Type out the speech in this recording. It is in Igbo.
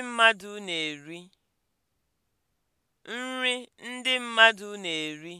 ndị mmadụ na-eri. nri ndị mmadụ na-eri